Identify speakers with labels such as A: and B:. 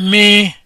A: me